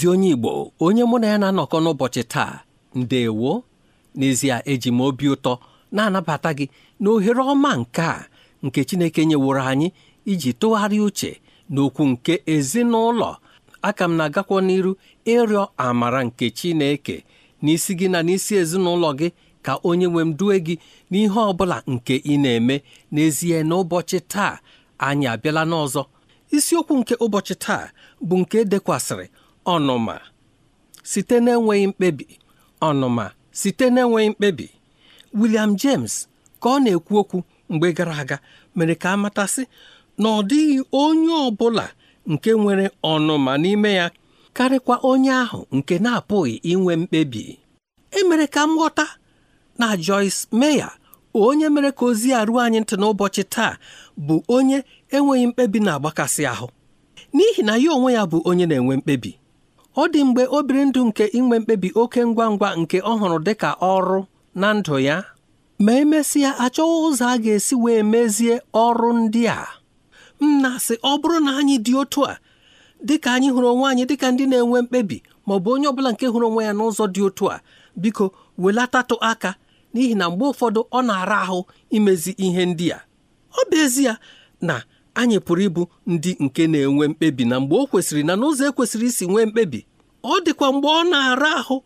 ezi onye Igbo onye mụ na ya na-anọkọ n'ụbọchị taa ndewo n'ezie eji m obi ụtọ na-anabata gị na ohere ọma nke a nke Chineke nyeworo anyị iji tụgharịa uche n'okwu nke ezinụlọ aka m na-agakwa n'iru ịrịọ amara nke Chineke n'isi gị na n'isi ezinụlọ gị ka onye nwe m due gị n'ihe ọ bụla nke ị na-eme n'ezie n'ụbọchị taa anyị abịala n'ọzọ isiokwu nke ụbọchị taa bụ nke e dekwasịrị ọnụma site n'enweghị mkpebi ọnụma site n'enweghị mkpebi William James ka ọ na-ekwu okwu mgbe gara aga mere ka a matasị na ọ dịghị onye ọ bụla nke nwere ọnụma n'ime ya karịkwa onye ahụ nke na-apụghị inwe mkpebi emere ka m ghọta na Joyce Meya, onye mere ka ozi a ruo anyị ntị n'ụbọchị taa bụ onye enweghị mkpebi na-agbakasị ahụ n'ihi na ya onwe ya bụ onye na-enwe mkpebi ọ dị mgbe o biri ndụ nke inwe mkpebi oke ngwa ngwa nke ọ hụrụ dịka ọrụ na ndụ ya ma emesịa achọghị ụzọ a ga-esi wee mezie ọrụ ndị a m na-asị ọ bụrụ na anyị dị otu a dịka anyị hụrụ onwe anyị dịka ndị na-enwe mkpebi ma ọ bụ onye ọbụla nke hụrụ onwe ya n'ụzọ dị otu a biko welatatụ aka n'ihi na mgbe ụfọdụ ọ na-ara ahụ imezi ihe ndị a ọ bụ ezie na anyị pụrụ ịbụ ndị nke na-enwe mkpebi na mgbe o kwesịrị na n'ụzọ ekwesịrị isi nwee mkpebi ọ dịkwa mgbe ọ na-ara ahụ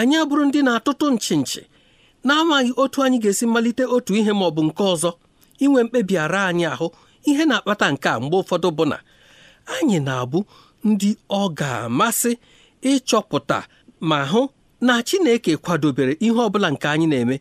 anyị abụrụ ndị na-atụtụ nchi nchi na-amaghị otu anyị ga-esi malite otu ihe ma ọ bụ nke ọzọ inwe mkpebi ara anyị ahụ ihe na-akpata nke a mgbe ụfọdụ bụ na anyị na-abụ ndị ọ ga-amasị ịchọpụta ma hụ na Chineke kwadobere ihe ọbụla nke anyị na-eme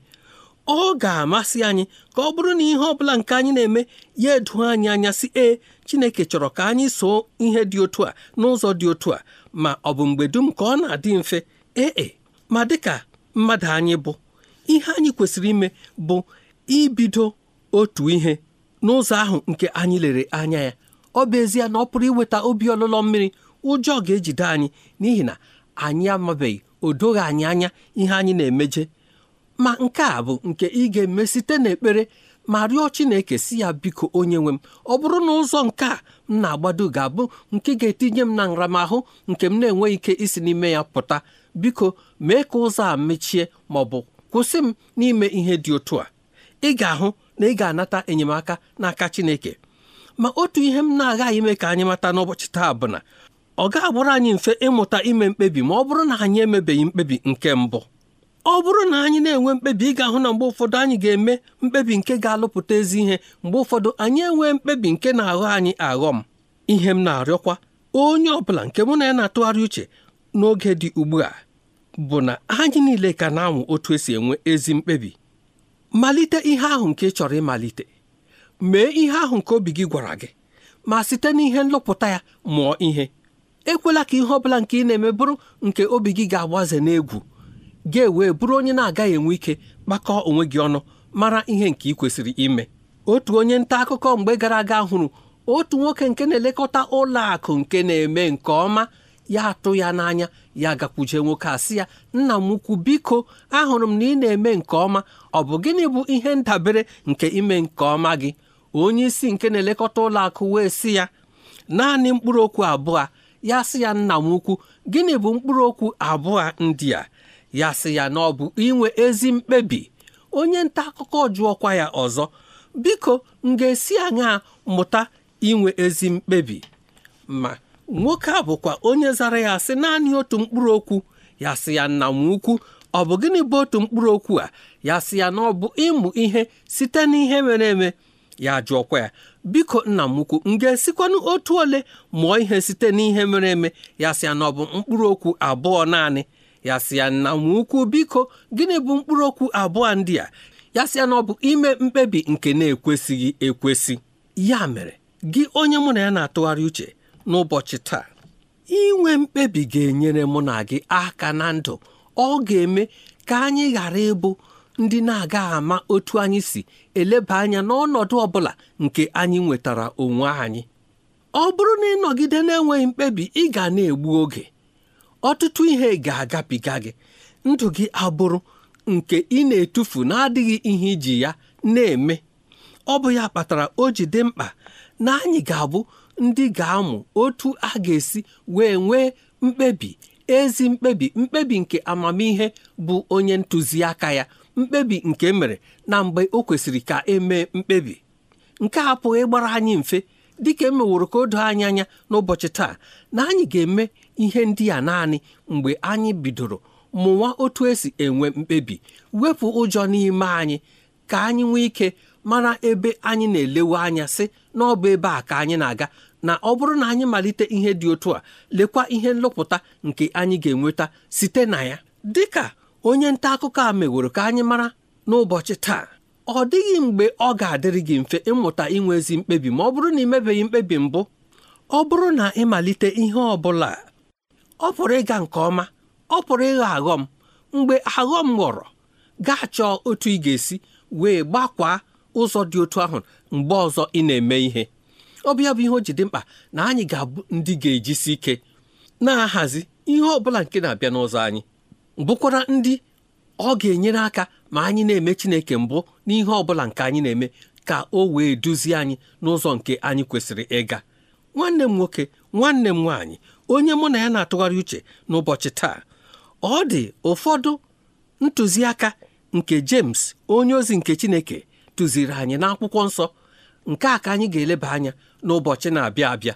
ọ ga-amasị anyị ka ọ bụrụ na ihe ọbụla nke anyị na-eme ya edu anyị anya si ee chineke chọrọ ka anyị soo ihe dị otu a n'ụzọ dị otu a ma ọ bụ mgbe dum ka ọ na-adị mfe ee e, ma dịka mmadụ anyị bụ ihe anyị kwesịrị ime bụ ibido otu ihe n'ụzọ ahụ nke anyị lere anya ya ọ bụ ezie na ọ pụrụ iweta obi ọlụlọ mmiri ụjọ ga-ejide anyị n'ihi na anyị amabeghị odoghị anyị anya ihe anyị na-emeje ma nke a bụ nke ị ga-eme site n'ekpere ma rịọ Chineke si ya biko onye nwe m ọ bụrụ na ụzọ nke a m na-agbado ga-abụ nke ga-etinye m na nramahụ nke m na-enweghị ike isi n'ime ya pụta biko mee ka ụzọ a mechie ma ọ bụ kwụsị m n'ime ihe dị otu a ị ga-ahụ na ị ga-anata enyemaka n'aka Chineke ma otu ihe m na-agaghị ime ka anyị mata n'ụbọchị taa bụ na ọ ga-agbụrụ anyị mfe ịmụta ime mkpebi ma ọ bụrụ na anyị emebeghị mkpebi nke mbụ ọ bụrụ na anyị na-enwe mkpebi ị ga-ahụ na mgbe ụfọdụ anyị ga-eme mkpebi nke ga-alụpụta ezi ihe mgbe ụfọdụ anyị enwee mkpebi nke na-aghọ anyị aghọ m ihe m na-arịọkwa onye ọbụla nke mụ na ya na-atụgharị uche n'oge dị ugbu a bụ na anyị niile ka na-anwụ otu esi enwe ezi mkpebi malite ihe ahụ nke ị chọrọ ịmalite mee ihe ahụ nke obi gị gwara gị ma site n'ihe nlụpụta ya mụọ ihe ekwela ka ihe ọbụla nke ị na-eme bụrụ nke obi gị ga-agbaze n'egwu ga ewee bụrụ onye na-agaghị enwe ike kpakọọ onwe gị ọnụ mara ihe nke ị kwesịrị ime otu onye nta akụkọ mgbe gara aga hụrụ otu nwoke nke na-elekọta ụlọ akụ nke na-eme nke ọma ya atụ ya n'anya ya gakwuje nwoke a ya nna m ukwu biko ahụrụ m na ị na-eme nke ọma ọ bụ gịnị bụ ihe ndabere nke ime nke ọma gị onye isi nke na-elekọta ụlọ akụ wee sị ya naanị mkpụrụ okwu abụọ ya sị ya nna m ukwu gịnị bụ mkpụrụ okwu abụọ ndị a ya sị ya na ọ bụ inwe ezi mkpebi onye nta akụkọ jụọkwa ya ọzọ biko m ga-esi aṅaa mụta inwe ezi mkpebi ma nwoke a bụkwa onye zara ya sị naanị otu mkpụrụ okwu ya sị ya nna m ukwu ọ bụ gịnị bụ otu mkpụrụ okwu a ya sị ya na ọ bụ ịmụ ihe site n'ihe mere eme ya jụọkwa ya biko nna m ukwu m ga-esikwanụ otu ole mụọ ihe site n'ihe mere eme ya sị ya na ọ bụ mkpụrụ okwu abụọ naanị ya sị ya nna ukwu biko gịnị bụ mkpụrụ okwu abụọ ndị a ya sị ya na ọ bụ ime mkpebi nke na-ekwesịghị ekwesị ya mere gị onye mụ na ya na-atụgharị uche n'ụbọchị taa inwe mkpebi ga-enyere mụ na gị aka na ndụ ọ ga-eme ka anyị ghara ịbụ ndị na aga ama otu anyị si eleba anya n'ọnọdụ ọ bụla nke anyị nwetara onwe anyị ọ bụrụ na ịnọgide na-enweghị mkpebi ị ga na-egbu oge ọtụtụ ihe ga-agabiga gị ndụ gị abụrụ nke ị na-etufu na-adịghị ihe iji ya na-eme ọ bụ ya kpatara o ji dị mkpa na anyị ga-abụ ndị ga-amụ otu a ga-esi wee nwee mkpebi ezi mkpebi mkpebi nke amamihe bụ onye ntụziaka ya mkpebi nke e mere na mgbe o kwesịrị ka emee mkpebi nke a pụghị ịgbara anyị mfe dịka emeworo ka o doo anyị anya n'ụbọchị taa na anyị ga-eme ihe ndị a naanị mgbe anyị bidoro mụwa otu esi enwe mkpebi wepụ ụjọ n'ime anyị ka anyị nwee ike mara ebe anyị na-elewe anya sị na ọ bụ ebe a ka anyị na-aga na ọ bụrụ na anyị malite ihe dị otu a lekwa ihe nlụpụta nke anyị ga-enweta site na ya Dị ka onye nta akụkọ a meworo ka anyị mara n'ụbọchị taa ọ dịghị mgbe ọ ga-adịrị gị mfe ịmụta inwe ezi mkpebi ma ọ bụrụ na ị mebeghị mkpebi mbụ ọ bụrụ na ịmalite ihe ọ bụla ọ pụrụ ịga nke ọma ọ pụrụ ịghọ aghọm mgbe aghọm ghọrọ gaa chọọ otu ị ga-esi wee gbakwaa ụzọ dị otu ahụ mgbe ọzọ ị na-eme ihe ọ bụ bụ ihe o ji dị mkpa na anyị ga-abụ ndị ga-ejisi ike na-ahazi ihe ọ bụla nke na-abịa n'ụzọ anyị bụkwara ndị ọ ga-enyere aka ma anyị na-eme Chineke mbụ n'ihe ọ bụla nke anyị na-eme ka o wee duzie anyị n'ụzọ nke anyị kwesịrị ịga nwanne m nwoke nwanne m nwaanyị onye mụ na ya na-atụgharị uche n'ụbọchị taa ọ dị ụfọdụ ntụziaka nke James onye ozi nke Chineke tụziri anyị n'akwụkwọ nsọ nke a ka anyị ga-eleba anya n'ụbọchị na-abịa abịa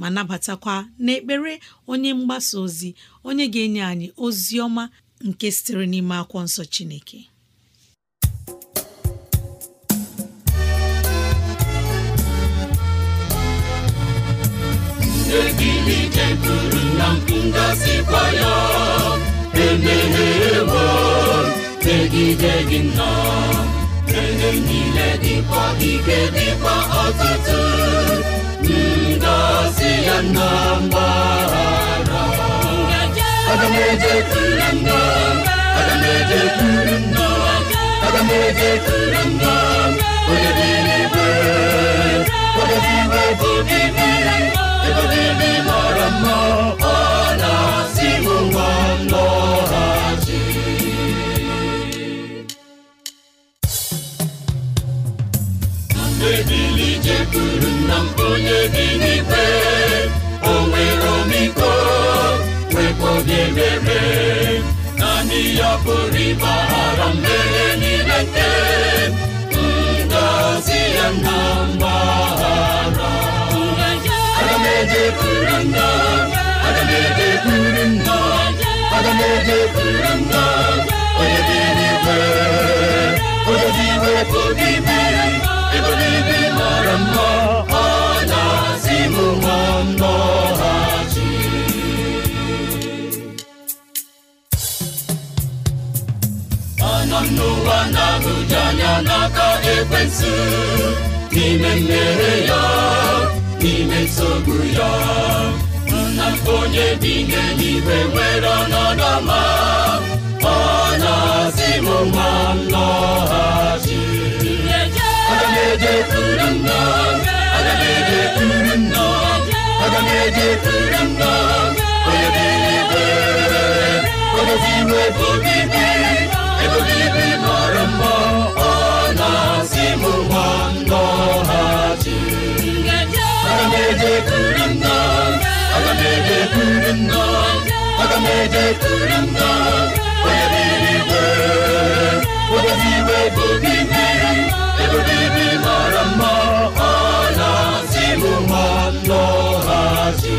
ma nabatakwa n'ekpere onye mgbasa ozi onye ga-enye anyị ozi ọma nke sitere n'ime akwụkwọ nsọ Chineke eturu na ngasịkwa ya emehewo megide gị nna ele niile dịkwa ike dịkwa ọtụtụ Anambra Aga m eje kuru Anambra Aga m eje kuru nna Aga jekwuru nna onye bi n'ikpe onwe nwere omiko nwekwa obi naanị ya pụrụ ịgbaghara mmehie niile nke ngọzi ya na mgbaghara aga onye dị n'ikpe ya n'aka ekwensu n'ime mmehie ya n'ime nsogbu ya nna onye bi n'eluigwe nwere ọnọdụ ọma aga m ejekwuru nna aga m ejekwuru nna onye n'eluigwe odozi iwe bụ obi mmiri ebube ibi mara mma ọ na-asị m nwa nnọghachi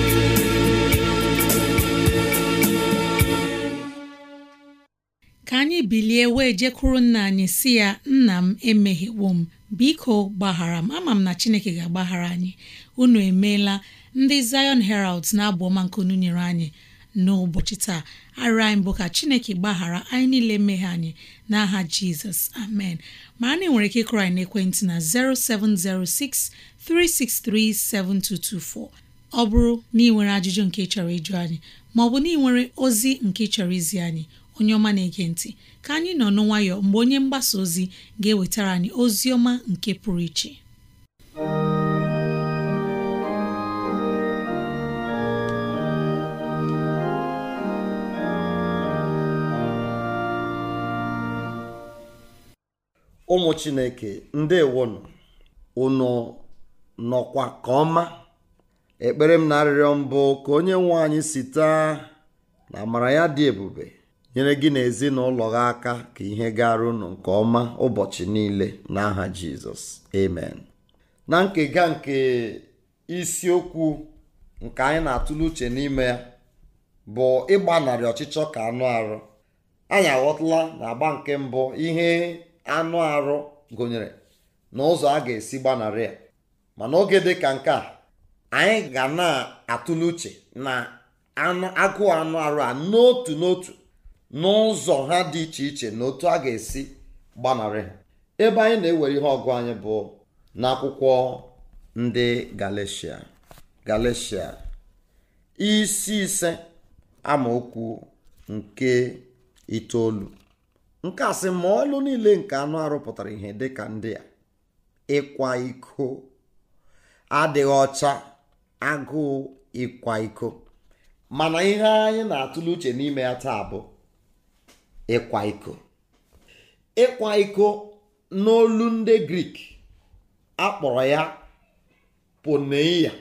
ka anyị bilie wee jekwuru nna anyị si ya nna m emeghewo m biko gbaghara m ama m na chineke ga-agbaghara anyị unu emeela ndị Zion Herald na-abụ ọma nke unu nyere anyị n'ụbọchị taa arịrịọ anyị bụ ka chineke gbaghara anyị niile meghe anyị n'aha jizọs amen ma na nwere ike ịkụrụ anyị na 0706 363 ọ bụrụ na nwere ajụjụ nke ị chọrọ ịjụ anyị maọbụ na ị nwere ozi nke ị chọrọ izi anyị onye ọma na-ege ntị ka anyị nọ n'nwayọ mgbe onye mgbasa ozi ga-ewetara anyị ozi ọma nke pụrụ iche ụmụ chineke ndewonụ unu nọkwa ka ọma ekpere m na arịrịọ mbụ ka onye nwe anyị site na amara ya dị ebube nyere gị na ezinụlọ gị aka ka ihe gara unu nke ọma ụbọchị niile n'aha jizọs amen na nkega nke isiokwu nke anyị na-atụle uche n'ime ya bụ ịgbanarị ọchịchọ ka anụ arụ anyị aghọtala na agba nke mbụ ihe anụ arụ gụnyere na ụzọ a ga-esi gbanarị a mana oge dị ka nke a anyị ga na-atụle uche na agụụ anụ arụ a n'otu n'otu n'ụzọ ha dị iche iche na otu a ga-esi gbanarị ha ebe anyị na-ewere ihe ọgụ anyị bụ n'akwụkwọ ndị Galeshia Galeshia isi ise amaokwu nke itoolu nke a sị ma ọlụ niile nke anụ arụpụtara ihe ihe ka ndị a ịkwa iko adịghị ọcha agụụ ịkwa iko mana ihe anyị na-atụle uche n'ime ya taa bụ ịkwa iko ịkwa iko n'olu ndị grik akpọrọ ya poneia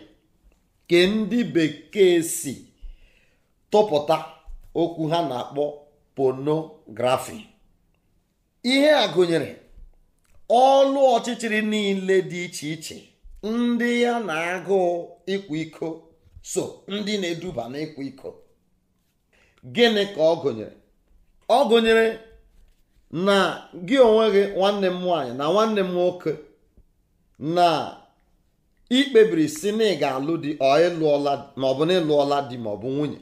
ke ndị bekee si tụpụta okwu ha na-akpọ ponografi ihe a gụnyere ọlụ ọchịchịrị niile dị iche iche ndị ya na agụ ịkwa iko so ndị na-eduba n'ịkwa iko gịnị ka ọ gụnyere ọ gụnyere na gị onwe gị nwanne m nwaanyị na nwanne m nwoke na ikpebiri si na ị ga-alụ di maọbụ na ịlụọla di maọbụ nwunye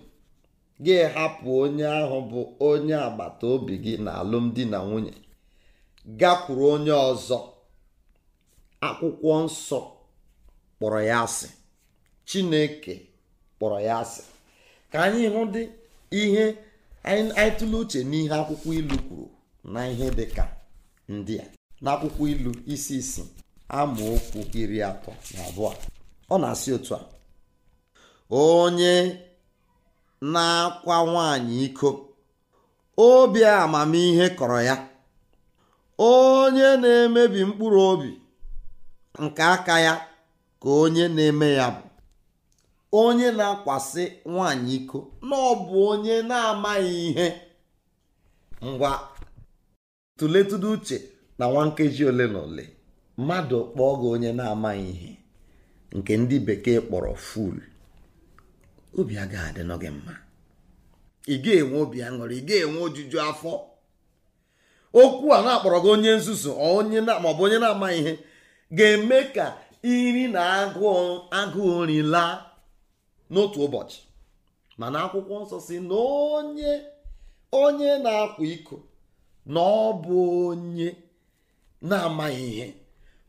gị hapụ onye ahụ bụ onye agbata obi gị na alụmdi na nwunye gakwuru onye ọzọ akwụkwọ nsọ kpọrọ ya asị chineke kpọrọ ya asị ka anyị hụ dị ihe anyị tụle uche n'ihe akwụkwọ ilu kwuru na ihe dị ka ndị a n'akwụkwọ ilu isi isi okwu iri atọ na abụọ ọ na-asị otu a onye na-akwa nwaanyị iko obi amamihe kọrọ ya onye na-emebi mkpụrụ obi nke aka ya ka onye na-eme ya bụ onye na-akwasị nwaanyị iko na ọ bụ onye na-amaghị ihe ngwa tụletụdụ uche na nwa nkeji ole na ole mmadụ kpọọ gị onye na-amaghị ihe nke ndị bekee kpọrọ ful obi aga adị mma ị ga-enwe obi aṅụrị ị ga-enwe ojuju afọ okwu a na-akpọrọ gị onye nzuzu onye maọbụ onye na-amaghị ihe ga-eme ka iri na agụụ agụụ nri laa n'otu ụbọchị mana akwụkwọ nsọ si na onye onye na-akwa iko na ọ bụ onye na-amaghị ihe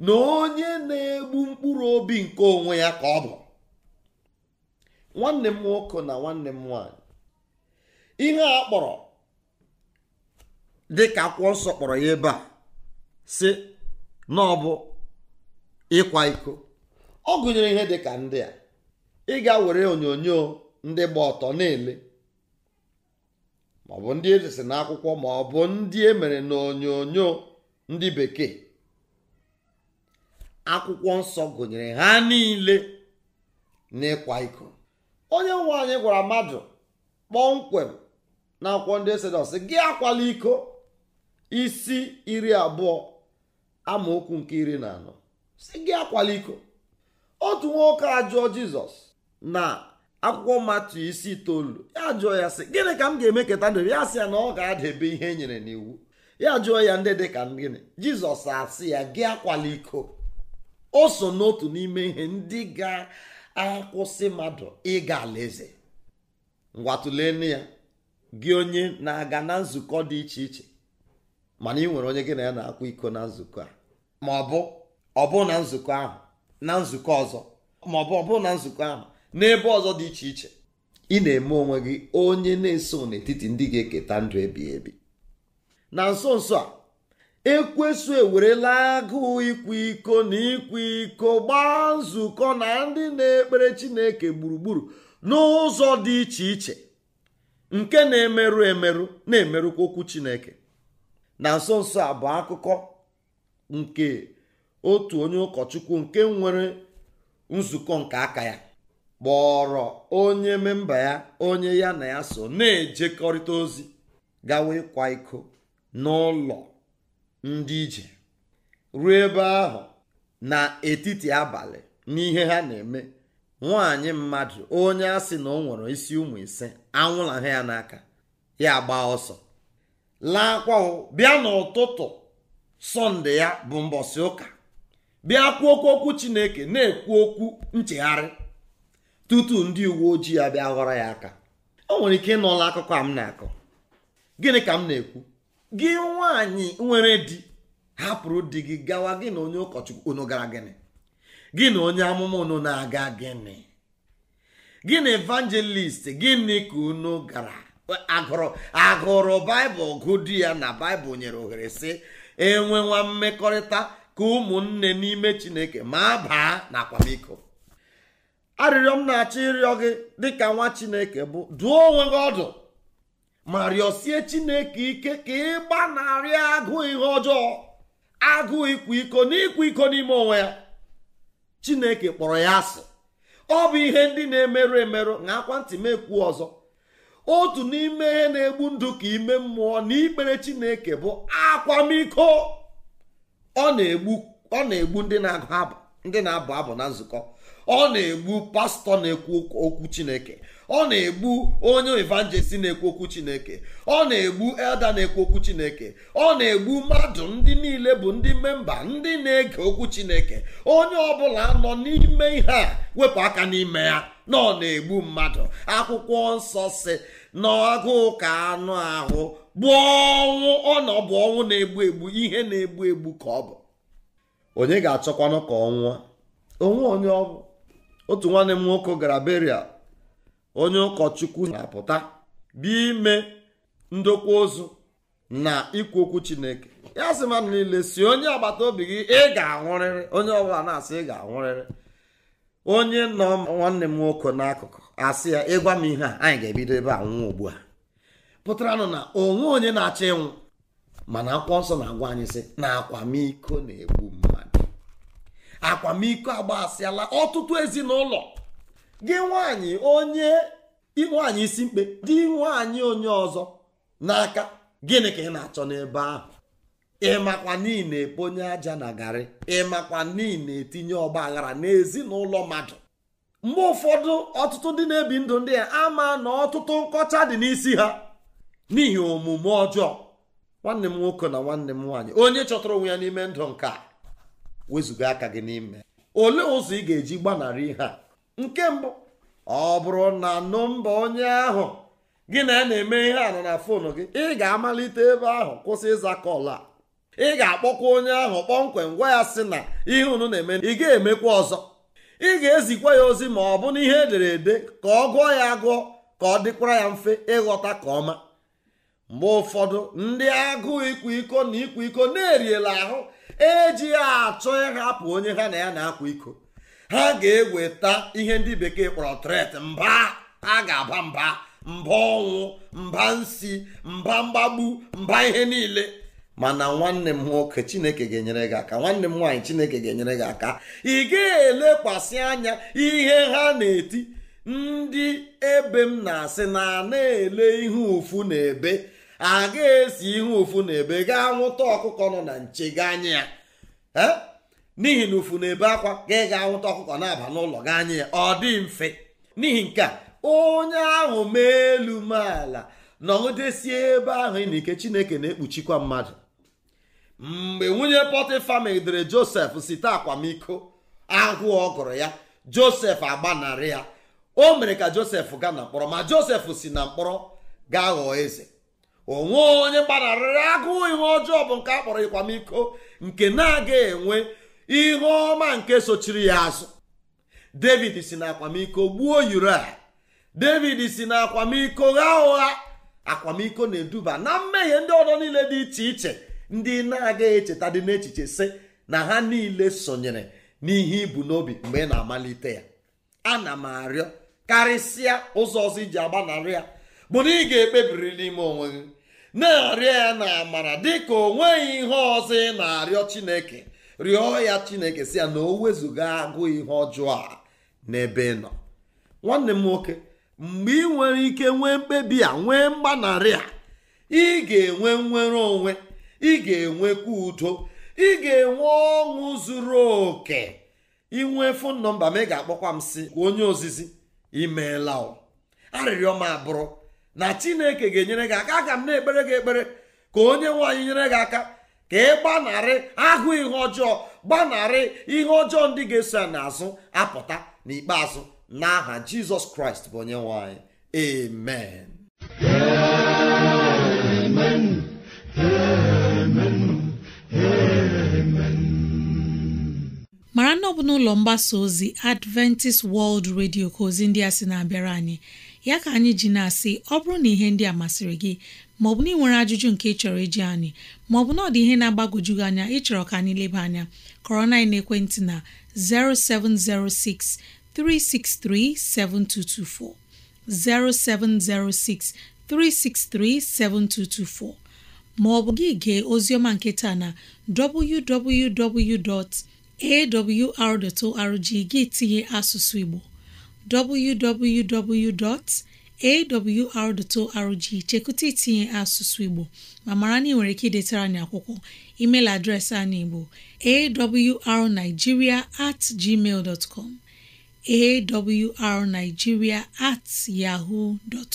na onye na-egbu mkpụrụ obi nke onwe ya ka ọ bụ nwanne m nwoke na nwanne m nwanyị ihe a kpọrọ dịka akwụkwọ nsọ kpọrọ ya ebe a si na ọ bụ ịkwa iko ọ gụnyere ihe dịka ndị a ị ga were onyonyo ndị gba ọtọ na ọ maọbụ ndị edesi n'akwụkwọ maọbụ ndị emere na onyonyo ndị bekee akwụkwọ nsọ gụnyere ha niile n'ịkwa iko onye nwe anyị gwara mmadụ kpọmkwem na akwụkwọ ndị nọ e gị akwala iko isi iri abụọ amaokwu nke iri na anọ si gị akwala iko otu nwoke ajụọ jizọs na akwụkwọ matu isi itoolu ya jụọ ya sị gịnị ka m ga-eme keta ndụ ya sị ya na ọ ga-adebe ihe e nyere n'iwu ya jụọ ya ndị dị ka gịnị jizọs asị ya gị akwala iko o so n'otu n'ime ihe ndị ga-akwụsị mmadụ ịga alaeze ngwa ya gị onye na-aga na nzukọ dị iche iche mana ị nwere onye gị na ya na-akwa iko na nzukọ a ma ọ bụ ọbụ na nzukọ ahụ na nzukọ ọzọ ma ọ bụ ọbụ na nzukọ ahụ n'ebe ọzọ dị iche iche ị na-eme onwe gị onye na-eso n'etiti ndị ga-eketa ndụ ebi ebi na nso nso a ekwesu ewerela agụụ ikwa iko na ịkwa iko gbaa nzukọ na ndị na-ekpere Chineke gburugburu n'ụzọ dị iche iche nke na-emerụ emerụ na-emerụkwa okwu Chineke na nso nso a bụ akụkọ nke otu onye ụkọchukwu nke nwere nzukọ nke aka ya kpọrọ onye memba ya onye ya na ya so na-ejekọrịta ozi gawa ịkwa iko n'ụlọ ndị ije ruo ebe ahụ n'etiti abalị n'ihe ha na-eme nwaanyị mmadụ onye a sị na ọ nwere isi ụmụ ise anwụla ha ya n'aka ya gbaa ọsọ laakwa bịa n'ụtụtụ sọnde ya bụ mbọsị ụka bịa kwuo okwu Chineke na-ekwu okwu nchegharị tutu ndị uwe ojii abịa ghọrọ ya aka o nwere ike ịnọla akụkọ a m na-akọ gịnị ka m na-ekwu gị nwaanyị nwere di hapụrụ di gị gawa gị na onye ụkọchukwu unu gara gịnị gị na onye amụma unu na-aga gịnị gị na evangelist gịnị ka unu gara agụrụ agụrụ baịbụl gụ di ya na baịbụl nyere ohere sị enwewa mmekọrịta ka ụmụnne n'ime chineke ma baa na akwamiko arịrịọ m na-achọ ịrịọ gị dịka nwa chineke bụ duo onwe gị ọdụ ma rịọsie chineke ike ka ị gbanarị agụụ ihe ọjọọ agụụ ịkwa iko na iko n'ime onwe ya chineke kpọrọ ya asị ọ bụ ihe ndị na-emerụ emerụ na akwa ntị m ọzọ otu n'ime ihe na-egbu ndụ ka ime mmụọ na ikpere chineke bụ akwamiko ọ na-egbu ndị na-agụ abụ ndị na-abụ abụ na nzukọ ọ na-egbu pastọ na-ekwu okwu chineke ọ na-egbu onye evanjelisti na-ekwu okwu chineke ọ na-egbu elda na-ekwu okwu chineke ọ na-egbu mmadụ ndị niile bụ ndị memba ndị na-ege okwu chineke onye ọbụla nọ n'ime ihe a wepụ aka n'ime ya na ọ na-egbu mmadụ akwụkwọ nsọ si n'agụụ ka anụ ahụ bụ ọnwụ ọ na ọ bụ ọnwụ na-egbu egbu ihe na-egbu egbu ka ọ bụ onye ga-achọkwanụ ka ọ nwụọ onwe onye ọ bụ otu nwanne m nwoke gara beria onye ụkọchukwu na-apụta bịa ime ndokwa ozu na ikwu okwu chineke ya sị mmadụ niile si onye agbata obi gị ị ga-anwụrịrị onye ọbụla na-asị ị ga-anwụrịrị onye nọ nwanne m nwoke n'akụkụ asị ya ịgwa m ihe a anyị ga-ebido ebe a nwụọ ugbu a pụtaranụ na onwe onye na-achọ ịnwụ mana akwụkwọ nsọ na-agwa anyị sị na akwamiko na-egbu m akwamiko agbasịala ọtụtụ ezinụlọ gị nwanyị onye nwanyị isi mkpe dị nwaanyị onye ọzọ n'aka gịnị ka ị na-achọ n'ebe ahụ ịmakwa niile eponye aja na garị ịmakwa niile etinye ọgba aghara n'ezinụlọ mmadụ mgbe ụfọdụ ọtụtụ ndị na-ebi ndụ ndị a ama na ọtụtụ nkọcha dị n'isi ha n'ihi omume ọjọọ nwanne m nwoke na nwanne m nwaanyị onye chọtara onwe ya n'ime ndụ nke a wezụga aka gị n'ime olee ụzọ ị ga-eji gbanarị ihe a nke mbụ ọ bụrụ na nọmba onye ahụ gị na ya na-eme ihe a na foonu gị ị ga-amalite ebe ahụ kwụsị ịza kọl a ị ga-akpọkwa onye ahụ kpọmkwem gwa ya sị na ihe unu na-eme ị ga-emekwa ọzọ ị ga-ezikwa ya ozi ma ọ bụ na ihe edere ede ka ọ gụọ ya agụọ ka ọ dịkwara ya mfe ịghọta ka ọma mgbe ụfọdụ ndị agụụ ịkwa iko na ịkwa iko na-eriela ahụ eji achọ ịhapụ onye ha na ya na-akwa iko ha ga-eweta ihe ndị bekee kpọrọ tret mba ha ga-aba mba mba ọnwụ mba nsi mba mgbagbu mba ihe niile mana nwanne m nwoke chineke ga-enyere gị aka nwanne m nwaanyị chineke ga-enyere gị aka ị ga-elekwasị anya ihe ha na-eti ndị ebe m na-asị na na-ele ihe ụfụ na ebe a esi ihe ụfụ na ebe gaa nwụta ọkụkọ nọ na nche gị anya ya n'ihi na ụfụ na ebe akwa ga ịga nwụta ọkụkọ na-aba n'ụlọ gị anya ya ọ dị mfe n'ihi nke a onye ahụ mee elu maala nọdesie ebe ahụ na ike chineke na-ekpuchikwa mmadụ mgbe nwunye pọtịfa megidere josef site akwamiko agụụ ọ gụrụ ya josef agbanarị ya o mere ka josef gaa na mkpọrọ ma josef si na mkpọrọ gaa ghọọ eze onwe onye gbanarịrị agụụ ihe ọjọọ bụ nke a kpọrọ ịkwamiko nke na aga enwe ihe ọma nke sochiri ya azụ david si na akwamiko gbuo uria david si na akwamiko gha ụgha akwamiko na-eduba na mmehie ndị ọdọ niile dị iche iche ndị na aga echeta dị n'echiche sị na ha niile sonyere n'ihe ibu n'obi mgbe ị na-amalite ya ana m arịọ karịsịa ụzọ ọzọ iji agbanarị ya bụ na ị ga-ekpebiri n'ime onwe gị na-arịọ ya na amara dịka o nweghị ihe ọzọ ị na-arịọ chineke rịọ ya chineke si ya na o wezụga agụ ihe ọjọọ a n'ebe ị nọ nwanne m nwoke mgbe ị nwere ike nwee mkpebi a nwee mgbanarị a ị ga-enwe nnwere onwe ị ga-enwekwa udo ị ga-enwe ọṅụ zuru oke inwe fon nọmba m ị ga-akpọkwa m si onye ozizi imeela arịrịọ m abụrụ na chineke ga-enyere gị aka aga m na-ekpere gị ekpere ka onye nwanyị nyere gị aka ka ị gbanarị ahụ ihe ọjọọ gbanarị ihe ọjọọ ndị ga-eso ya n'azụ apụta n'ikpeazụ n'aha jizọs kraịst bụ onye nwanyị. amen amen amen mara na ọ bụ n'ụlọ mgbasa ozi adventist world radio ka ozi ndị a sị na-abịara anyị ya ka anyị ji na-asị ọ bụrụ na ihe ndị a masịrị gị maọbụ na ị nwere ajụjụ nke ị chọrọ iji anyị maọbụ na ọ dị ihe na-agbagwoju gị anya ịchọrọ ka anyị leba anya kọrọ na ekwentị na 0706 363 7224 0706 363 7224 maọbụ gị gee ozioma nke na www.awr.org gị tinye asụsụ Igbo www.awr.org chekwụta itinye asụsụ Igbo ma mara na ị nwere ike idetara anyị akwụkwọ email adreesị anyị bụ awrnigeria at gmail dot com at yahoo dot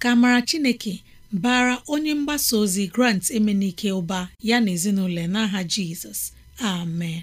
ka mara Chineke bara onye mgbasa ozi Grant Emenike ụba ya na ezinụlọ n'aha Jizọs amen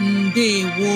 ndewo